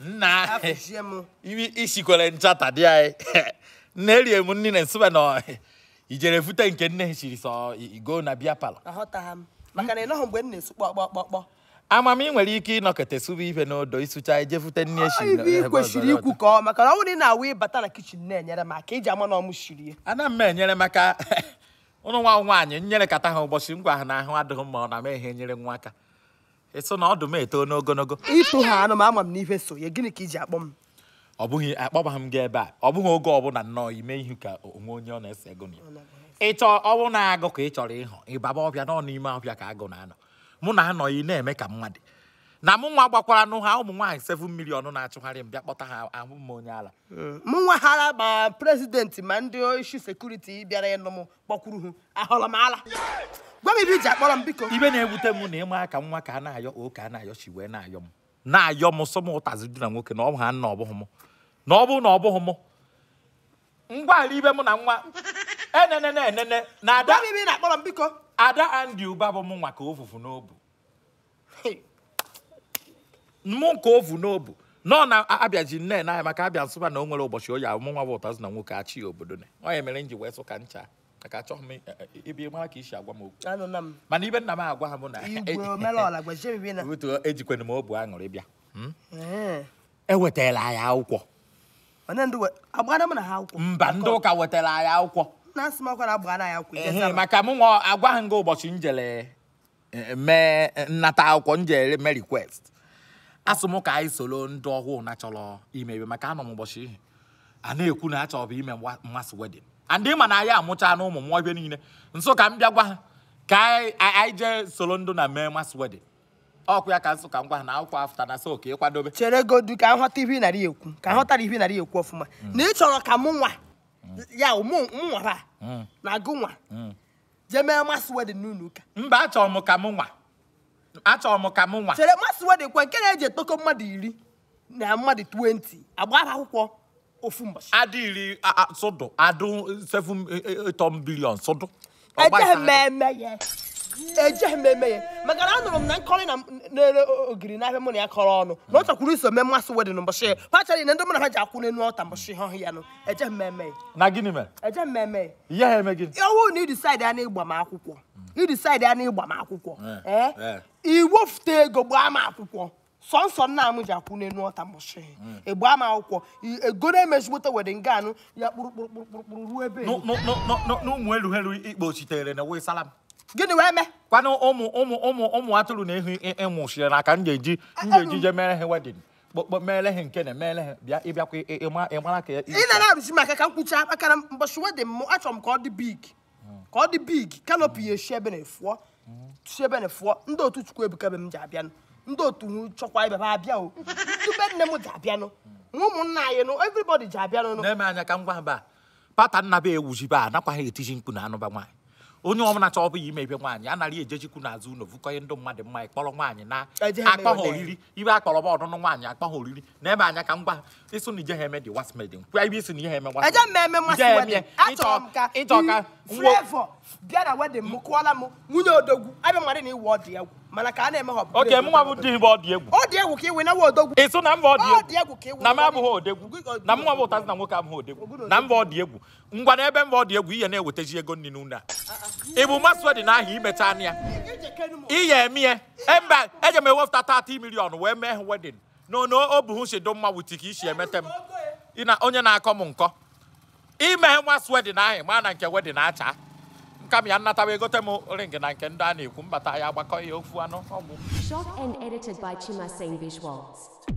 nna isikwere nchata dị anyị na erie m nri na nsụbe na ijere fute nke nne siri sọ igo na bịa pala amam ị nwere ike ịnọkọta sụbe ife n'odo ịsụcha eje fute nne eshiri kwesịrị ikwu ka ọ maka na ọ bụrụ ị na-awụ ịbata na kichin na-enyere m aka iji ama na ọmụ shiri ana m enyere maka ụnụ nwa nwaanyị nyere kata ha ụbọchị ngwa ha na ahụ adịghị mma ọ na m ehe nyere nwa aka ịsụ na ọdụ m eto n'ogologo ịtụ ha anụ m ama m n'ife so ya gịnị ka iji akpọ m ọ bụghị akpọbaghị m gị ebe a ọ bụghị oge ọbụla nnọọ ime ihe ka onwe onye ọ na-ese ego na ịchọ ọwụ na-agụ ka ị chọrọ ịhụ ịbaba ọbịa nọ n'ime ọbịa ka agụ na-anọ mụ na anọghị na-eme ka mmadụ na mụ nwa gbakwara nụ ha ụmụ nwaanyị seven million na-achụgharị m bịa kpọta ha ahụ m onye ala m nwa hara ma prezidenti ma ndị isu sekuriti bịara ịnụ m kpọkwuru ha m ala m ibe ji akpọrọ m biko ibe na-ewute m na ịma aka nwa ka a na-ayọ oke a na-ayọ chi wee na-ayọ m na-ayọ m sọ m ụtazi dị na nwoke na ọ bụ ha nna ọ bụghị m na ọ bụrụ na ọ bụghị m ngwaala ibe m na nwa enene enene na ada ibe na-akpọrọ m biko ada andi ụba bụ m nwa ka ovuvu n'obu mụ nke ovu n'obu nọ na abịaji nne na maka abịa nsụba na o nwere ụbọchị oyi ahụ mụnwa bụ ụtazụ na nwoke achị obodo onye mere m ji wee sụ ncha maka achọghị m ibi mara ka i si agwa m okwu mana ibe nna m agwa ha bụ na ejikwana e m obu aṅụrị bịa hmm? ewetala e anyị akwụkwọ mba ndị ụka wetara anyị akwụkwọ maka mụ nwa agwaghị m gị ụbọchị njele e, mee nnata akwụkwọ njele mee request asị m ka anyị soro ndị ọhụụ na chọrọ ime ebe maka anọ m ụbọchị ihe a na-ekwu na achọrọ bụ ime mmasị wedin andị ma eh. na ya amụcha na ụmụ mmụọ ibe niile nso ka m bịa gwa ha ka anyị jee soro ndụ na mee mas wedin ọkụ ya ka nsụ ka ngwa ha na akwụkwọ afta na so ka ịkwadobe chere godu ka nghọta ihe narị ekwu ka nghọtara ihe narị ekwu ọfụma na ị chọrọ mm. ka mụ nwa ya mụ nwara na agụ nwa jee mee mas wedin n'ụlọ ụka mba achọrọ m ka mụ nwa achọrọ m ka mụ nwa chere mas wedin kwe nke na-eji etoko mmadụ iri na mmadụ 20 agba akwụkwọ ofumbashi adịrị sụdụ adụ 7 billion sụdụ ejeghị m eme ya ejeghị ye eme ya maka na anụrụ na nkọrị na na ogiri n'ahịa mụ na ya kọrọ ọnụ na ọ chakwuru iso mee mmasị wedịn na ndị na ha ya nụ eje eme na gịnị m eme eme na ya akwụkwọ idisaid ya ego gbaa m sọnsọ nna m ji akwụ akwụne n'ọta mụshi hmm. egbe ama akwụkwọ egoro emezigbote wede nga anụ ya kpụrụkpụrụkpụrụkpụrụ ruo ebe n'ụmụ elughelu ikpo chitere na wee salam gịnị wee mee kwanụ ụmụ ụmụ ụmụ ụmụ atụrụ e, e, na ehi ịmụchire na ka m ga-eji m ga-eji je mere ha wedin mere ha nke na mere ha bịa ịbịakwa ịmara ka ị na-arụzi maka ka m akara maka na mbọchị wedin m achọrọ m ka ọ dị big hmm. ka ọ dị big kanopị ya eshi ebe na-efuọ chiebe ne fụọ ndị otu chukwu ebuka be m ji abịanụ ndị otu chọkwa ibe m abịa o nne m ji abịanụ ụmụnna anyị nụ everybody ji abịanụ na-eme anya ka m gwa mba pata nna be ewuzibe a anakwaghị etiji mkpu na anụba nwaanyị onye ọbụla chọọ ọbụ ya imebe nwaanyị anara ejechikwu n'azụ ụlọ vụkọnye ndị mmadụ mma ịkpọrọ nwaanyị na akpọ ha oriri ibe akpọrọ ba ọdụnụ nwaanyị akpọ ha oriri na ebe anya ka m gwa ịsụ na ije ha eme dị wasmedin kwa ebe isi na ihe eme wasmedin ịjọ ka bịara wedịn m kụọla m nwunye odogwu abịa mmadụ na iwe ọdị egwu mana a na-eme oke bụ ọdị egwu ọ dị egwu ka iwe na odogwu ịsụ na mba ọdị egwu na m abụghị odegwu na mụnwa bụ ụtazi na nwoke abụghị odegwu na mba ọdị egwu ngwa na ebe mba ọdị egwu ihe na-ewetaji ego nnụnụ n'ụlọ a ịbụ masụọ dị n'ahịa imecha anụ ya ihe emie mba eje m ewepụta 30 milion wee mee wedin no no o si dị mma wuti ka isi m onye na-akọ m nkọ nwa swedin nke wedin acha nkami ya nnatawa egote m ring na nke ndị a na-ekwu mbata ya agbakọ ya e ofu anụ ọgbụ shot and edited by Chimaseng